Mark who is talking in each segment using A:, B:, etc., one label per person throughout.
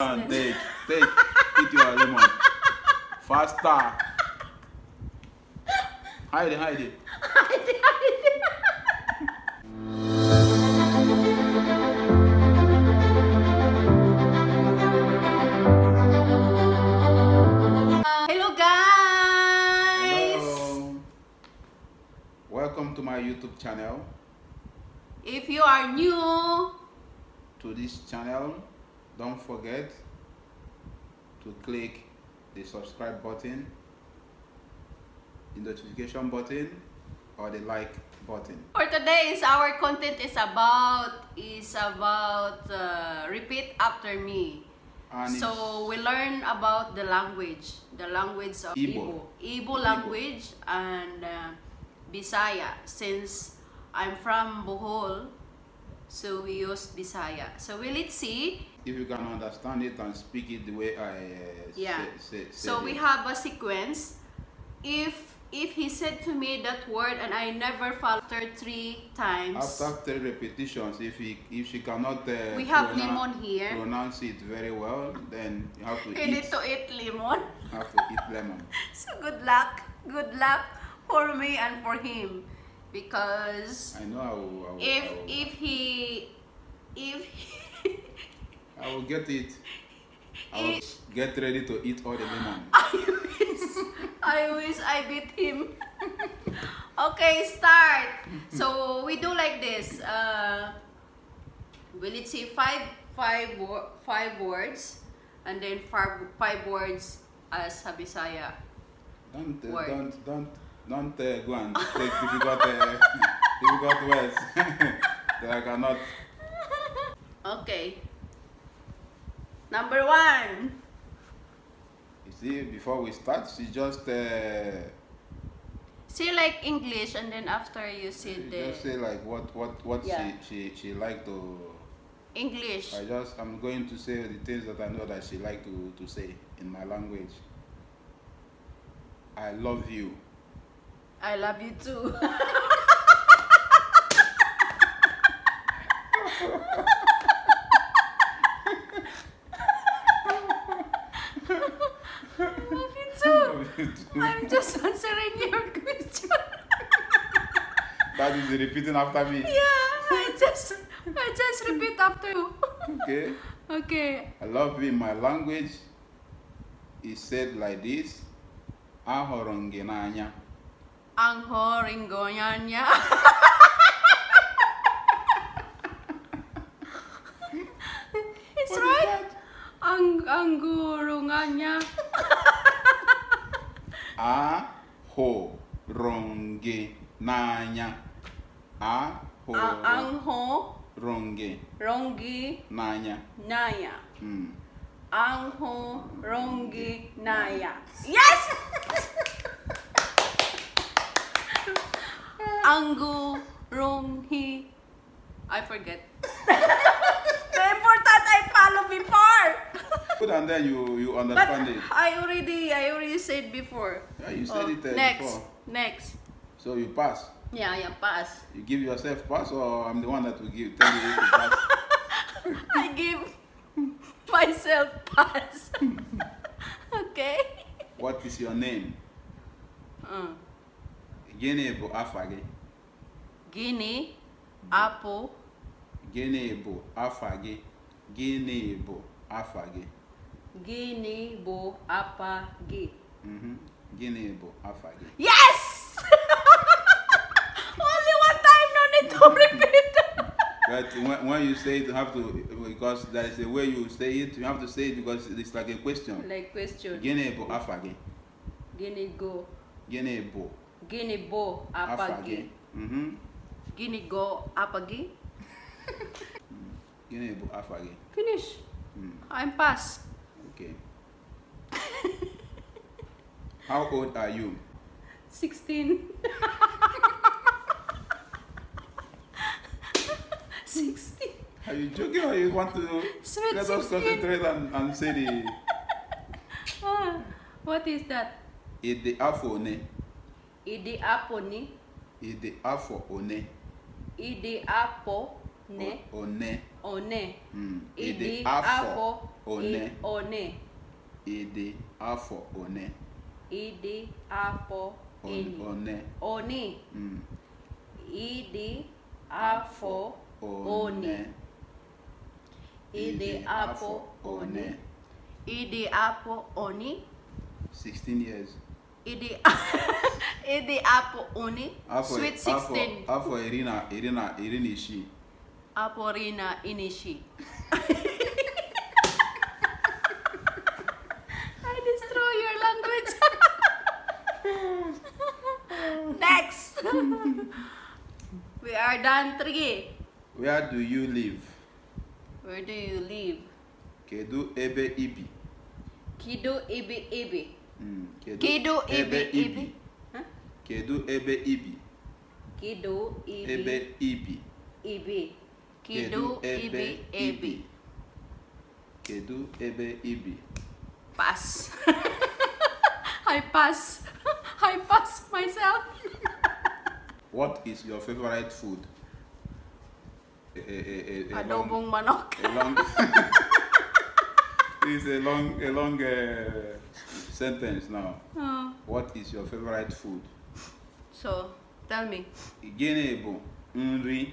A: And take, take, eat your lemon. Faster. Hide it, hide it.
B: Hello guys. Hello.
A: Welcome to my YouTube channel.
B: If you are new
A: to this channel, don't forget to click the subscribe button the notification button or the like button
B: for today is our content is about is about uh, repeat after me and so we learn about the language the language of Igbo Igbo, language Ibo. and uh, Bisaya since I'm from Bohol so we use Bisaya so we let's see
A: if you can understand it and speak it the way I uh, yeah. Say, say, so we have
B: a sequence. If if he said to me that word and I never faltered three times. After
A: three repetitions, if he if she cannot uh, we have lemon here. Pronounce it very well, then you have to. You need to
B: eat lemon.
A: have to eat lemon.
B: so good luck, good luck for me and for him, because
A: I know I will, I will, if I will.
B: if he if. He
A: I will get it. I will get ready to eat all the lemon. I
B: wish, I wish I beat him. okay, start. So we do like this. Uh, we let's say five, five, five words, and then five, five words as Habisaya.
A: Don't, uh, word. don't, don't, don't uh, go and take difficult, uh, difficult words. that I cannot.
B: Okay. Number one.
A: You see, before we start, she just. Uh,
B: say like English, and then after you say the. Just
A: say like what what what yeah. she she she like to.
B: English. I
A: just I'm going to say the things that I know that she like to to say in my language. I love you.
B: I love you too. I'm just answering your question.
A: that is repeating after me. Yeah,
B: I just I just repeat after you. okay. Okay.
A: I love in my language. It said like this. Ahoronginanya.
B: Anghoringonyanya. it's what right. Ang angurungannya.
A: ahụrụ m gị n'anya ho, m gị n'anya
B: n'anya ahụrụ m gị naya. yes Angu Ronghi. I forget. the important I follow before.
A: Put on there, you you understand but it.
B: I already I already said before. Yeah, you said oh, it uh, next, before. Next.
A: So you pass.
B: Yeah, yeah, pass.
A: You give yourself pass, or I'm the one that will give tell you to pass.
B: I give myself pass. okay.
A: What is your name? Guinea uh. Gene Ebo Afage.
B: Guinea, Apple.
A: Guinea Bo Afage. Guinea Bo Afage.
B: Gịnị bụ apa gị?
A: Mhm. bụ apa gị?
B: Yes! Only one time, no need to repeat.
A: But when, when you say it, you have to, because that is the way you say it, you have to say it because it's like a question. Like question. Gịnị bụ afa gị?
B: Gịnị go? apa bụ? Mhm. bụ apa gị?
A: Gịnị apa gị? bụ gị?
B: Finish. Mm. I'm past.
A: Okay. How old are you?
B: 16. 16.
A: Are you joking or you want to Sweet let 16. us concentrate and, and say the...
B: Oh, what is that?
A: Ede afo one.
B: apone. apo ne.
A: Ede afo
B: apo. ne. one one
A: ịdị afọ one one ịdị afọ one
B: ịdị afọ
A: one
B: one ịdị afọ one ịdị afọ one ịdị afọ one
A: 16 years
B: ịdị ịdị afọ one sweet 16
A: afọ iri na iri na iri na isii
B: Aporina Inishi. I destroy your language. Next. we are done three.
A: Where do you live?
B: Where do you live?
A: Kedu ebe ibi.
B: Hmm, kedu ebe ibi.
A: Mm. Kedu ebe ibi. Kedu ebe ibi.
B: Kedu ebe ibi. Ibi. Kedu ebe ebe.
A: Kedu ebe ibi.
B: Pass. I pass. I pass myself.
A: what is your favorite food? A, a, a, a Adobong long, manok. A long, it's a long, a long uh, sentence now. Oh. What is your favorite food?
B: So, tell me.
A: Gịnị bụ nri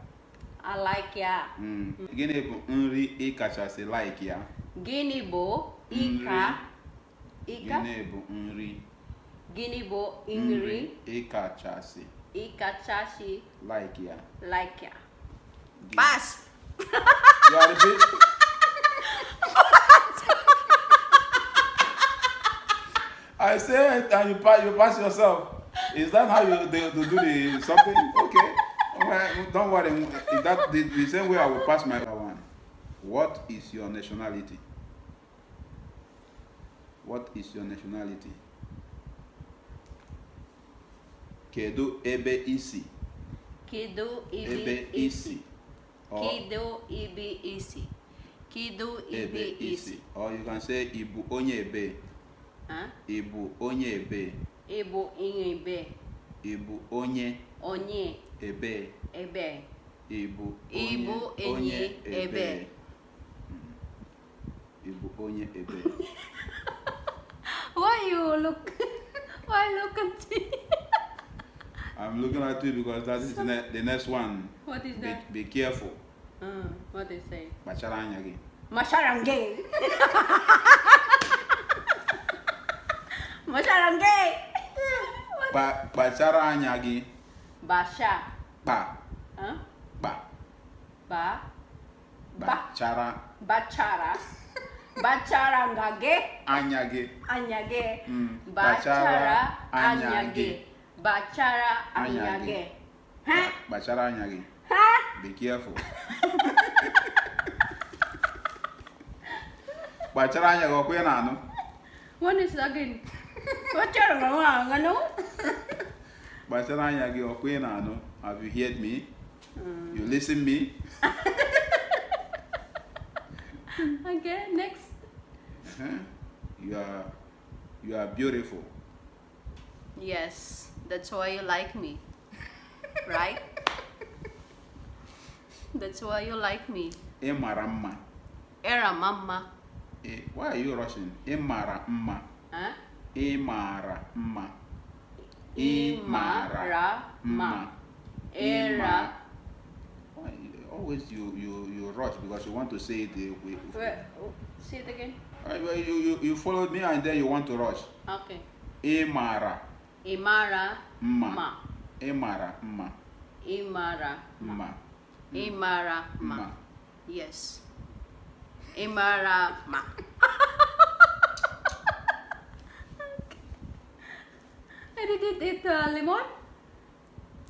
B: I like ya.
A: Mm. Mm. Gịnị bụ nri ị kachasị like ya?
B: Gịnị bụ ịka? Ịka? Gịnị bụ nri? Gịnị bụ nri?
A: Ị Chasi.
B: Ị Chasi Like ya. Like ya.
A: Gịnị. Pass. You are the bitch. I say it and you pass, you pass yourself. Is that how you they, they do the something? Okay. well, don't worry. that the, the same way I will pass my one. What is your nationality? What is your nationality? Kedu ebe isi?
B: Kedu ebe isi?
A: Kedu
B: ebe isi? Kedu ebe isi?
A: Or you can say ibu onye ebe. Huh? Ibu onye ebe.
B: Ibu onye ebe.
A: ibu onye onye ebe ebe ibu
B: bụ onye ebe
A: ị hmm. onye ebe
B: why you look why look at me
A: I'm looking at you because that is ne the next one.
B: What is that? Be, careful. Uh, what they say?
A: Macharanya gay.
B: Macharangay.
A: Ba bacara nyagi. Basha. Ba.
B: ha Ba. Ba.
A: Bacara.
B: Bacara. Bacara ngage. Anyage. Anyage.
A: Hmm. Bacara anyage.
B: Bacara anyage.
A: Hah? Bacara anyage. Hah? Be careful. bacara anyage ko kwena no.
B: What is again? Bacara ngano?
A: by the I'm your queen, I know. Have you heard me? Mm. You listen me?
B: okay, next.
A: Uh -huh. You are you are beautiful.
B: Yes, that's why you like me. right? That's why you like me.
A: Emaramma.
B: Eramamma.
A: E, why are you rushing? Emaramma. Huh? Emaramma. Imarama.
B: Era.
A: Oh, always you you you rush because you want to say it the way. Oh, say it again. you, you you followed me and then you want to rush. Okay. Imara.
B: Imara. Ma.
A: Imara. Ma.
B: Imara. Ma. Imara. Ma. Yes. Imara. Ma. I did it with uh, lemon.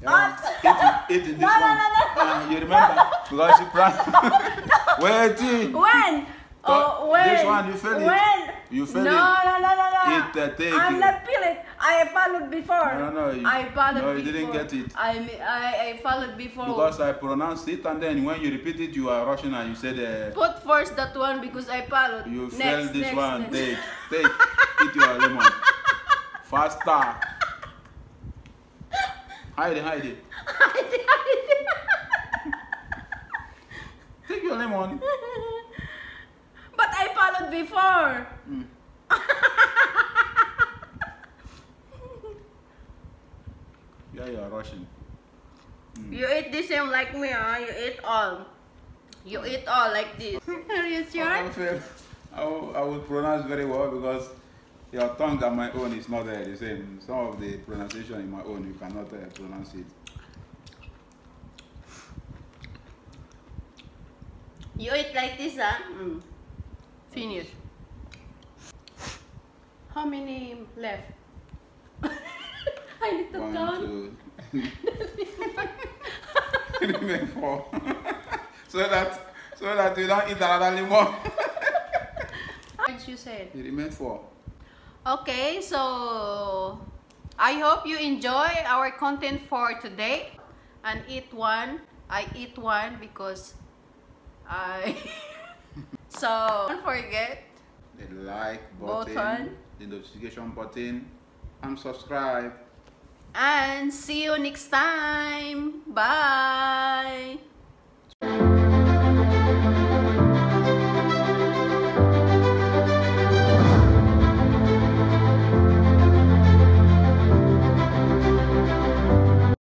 B: Yeah. Eat, eat, eat this no, one. No, no, no.
A: Um, uh, you remember? because you pranked. no. Waiting.
B: When? Oh, when? This one, you failed when? it. You failed no, it. No, no, no, no. It, uh, take I'm it. not feeling. I followed before. No, no, no. You, I followed no, you didn't get it. I, I, I followed before. Because
A: I pronounced it and then when you repeat it, you are Russian and you said... Uh,
B: Put first that one because I followed. You next, this next, one. Next. Take,
A: take. eat your lemon. Faster. Hide it, hide it.
B: Hide it, hide it. Take your lemon. But I followed before. Mm.
A: yeah, you are rushing.
B: Mm. You eat the same like me, huh? You eat all. You eat all like this. Are you sure?
A: I will, I will pronounce very well because your tongue and my own is not uh, the same. Some of the pronunciation in my own, you cannot uh, pronounce it.
B: You eat like this, huh? Mm. Finish. How many left? I need to One, count.
A: Two. four. so that so that you don't eat another lemon.
B: As you said?
A: You remain four.
B: Okay, so I hope you enjoy our content for today. And eat one. I eat one because I... so, don't forget.
A: The like button, button. the notification button, and subscribe.
B: And see you next time. Bye.